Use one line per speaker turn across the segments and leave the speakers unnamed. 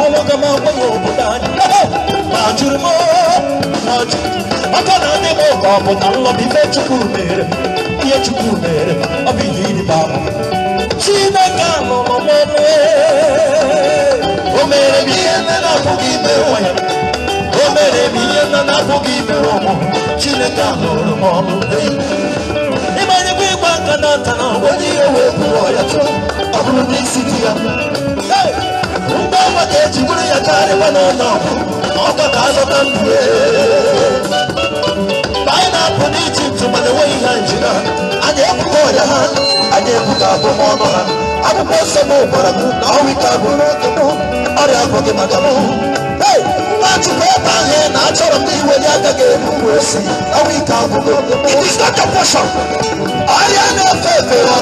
ọlọ́gá máa pé òkúta ní lọ́wọ́ nàjúrú mọ́ nàjúrú ọkọ náà ní mo kọ ọ̀pọ̀ta ń lọ bí ife chukwu mere ihe chukwu mere ọ bụ ihe iri baba chineke nọ n'ọmụmụ o mere m ihe nne na-apụghị ime ụwa ya o mere m ihe nne na-apụghị ime ụmụ chineke nụrụ m ọnụ ịmanyekwa ịgba aka na nta na onye ihe wee bụrụ ọya chọọ ọ bụrụ n'isi di ya iwe n'ụlọ ọkọ ka azụta mbụ mgbe anyị na-apụ n'ijipt mana enweghị ha njiri ha anyị ebuka ọrịa ha anyị ebuka abụmọnụ ha akwụkwọ nsọ m gwara m na ọnwa ike abụ n'oge m ọrịa abụghị maka m Achịkwa ebe ahụ na achọrọ m iweli aka ga-ebu It is not a portion. Ọrịa na-efe efe efe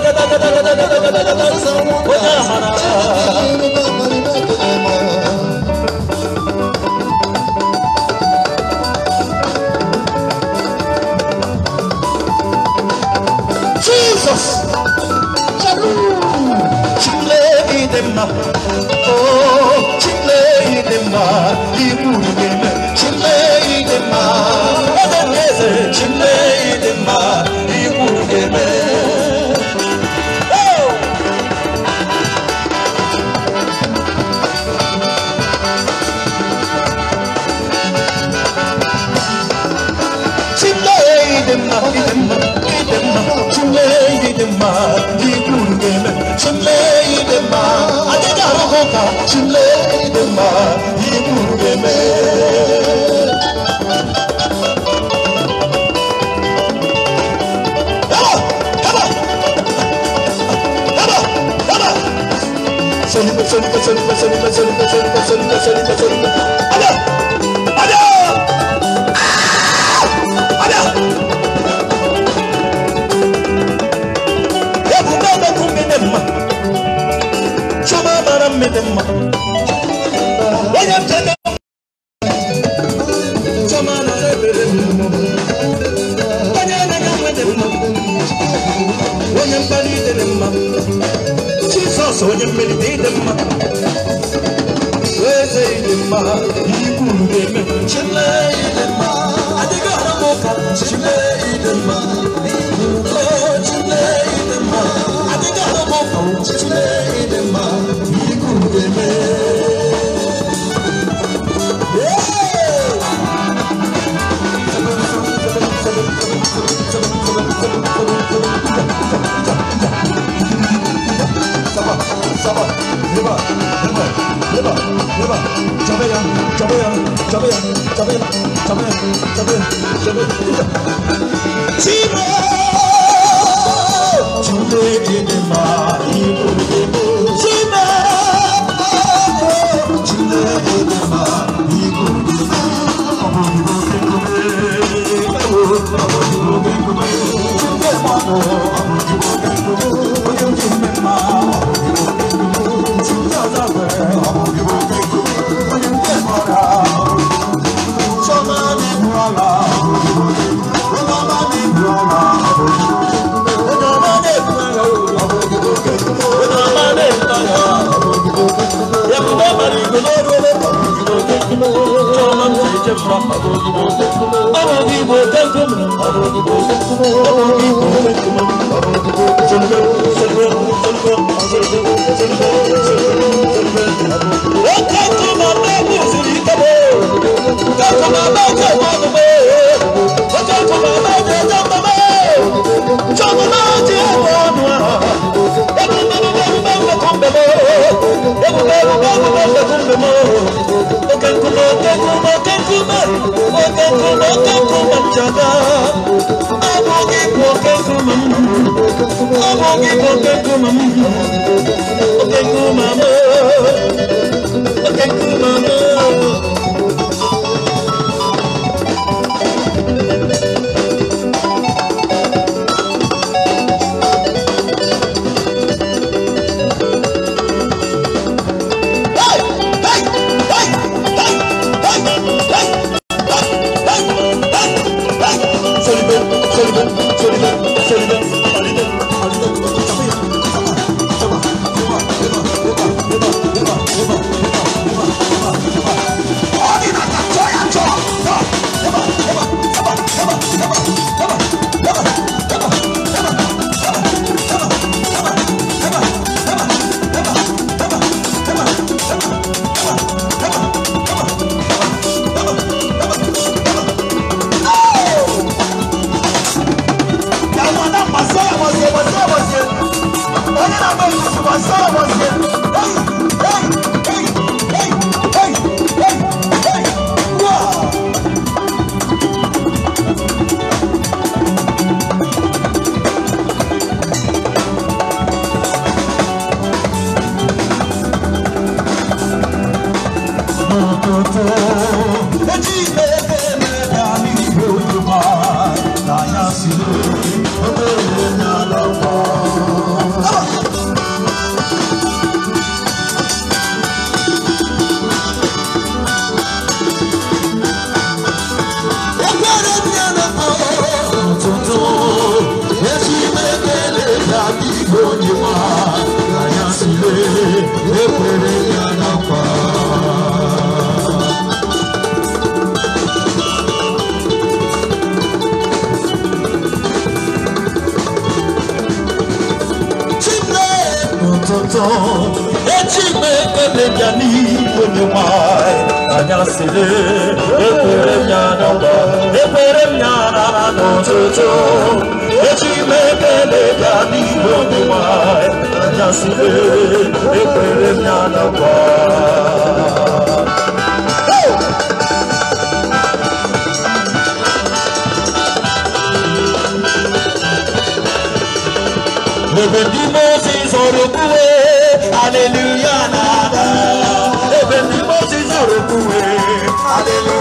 da ụtọ echi ekele bịa n'ihu na anyị anyasịrị ekwere m ya n'ọgba ekwere m ya n'ala n'ụtụtụ bịa ekwere m ya Èbè bí mo ti sọ̀rọ̀ kúwe, hallelujah nàdá. Èbè bí mo ti sọ̀rọ̀ kúwe, hallelujah.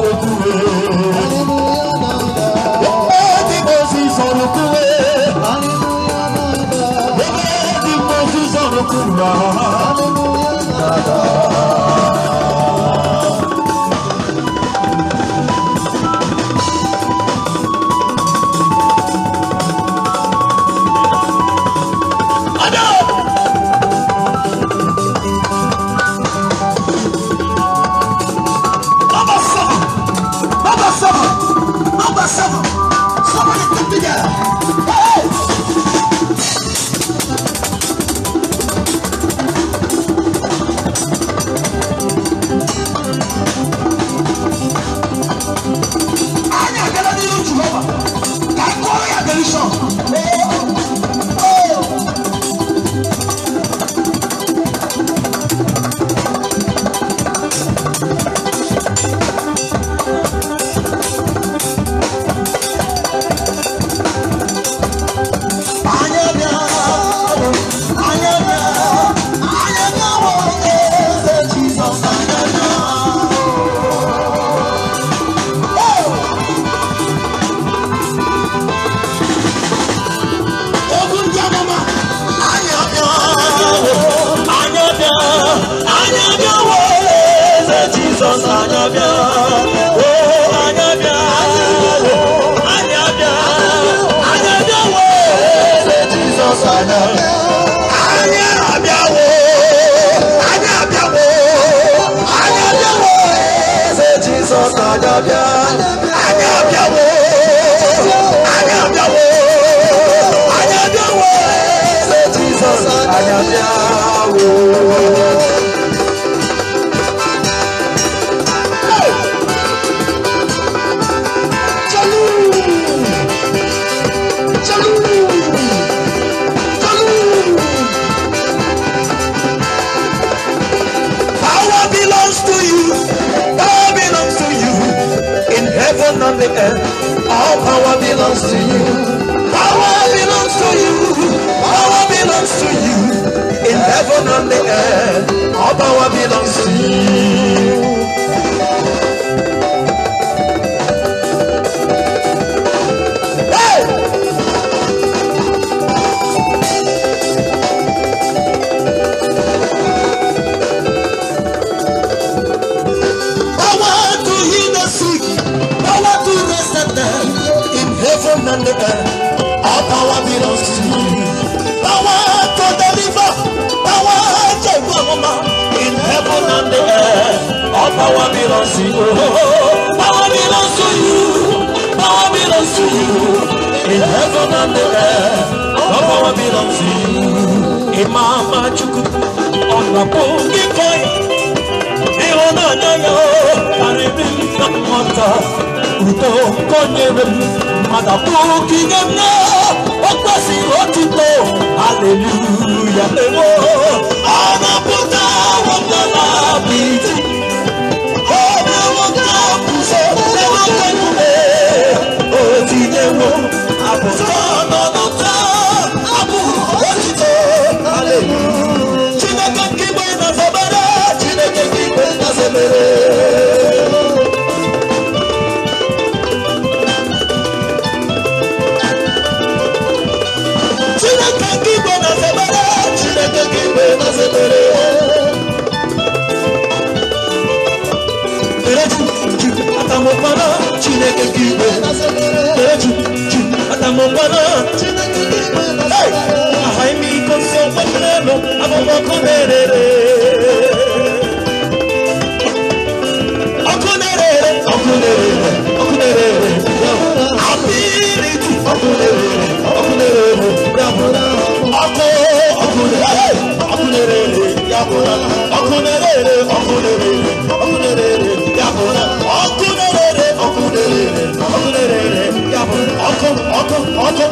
do it. Jesus anya bịa oh anya bịa anya bịa anya bịa anya anya anya bịa heaven and the earth. All power belongs to you. Power belongs to you. Power belongs to you. In heaven and the earth. All power belongs to you. nandekar our power belongs to you power to deliver power to gbọmọmọ in heaven and the earth our power belongs to you to you power belongs to you in heaven and the earth our power imama chukwu ọ̀nà kò kíkọ́ ìrọ̀nà náà yọ àrẹ̀mí náà mọ̀ta mata fún kingdom náà ó pẹ́ sí ó ti tó hallelujah lèwo. ọmọ bùtà wọn kọ́ láàbì tí ọmọ wọn kọ́ kùsọ̀ lẹ́wọ̀n pẹ̀lú ẹ̀ ó ti lẹ́wọ̀n àbùtà. ọkụ na-erere ọkụ na-erere ọkụ na-erere ọkụ na-erere abịrị ọkụ na-erere ọkụ na-erere ọkụ ọkụ na-erere ọkụ na-erere ya bụrụ ọkụ na-erere ọkụ na-erere ọkụ na-erere ya bụrụ ọkụ na-erere ọkụ na-erere ọkụ na-erere ya bụrụ ọkụ ọkụ ọkụ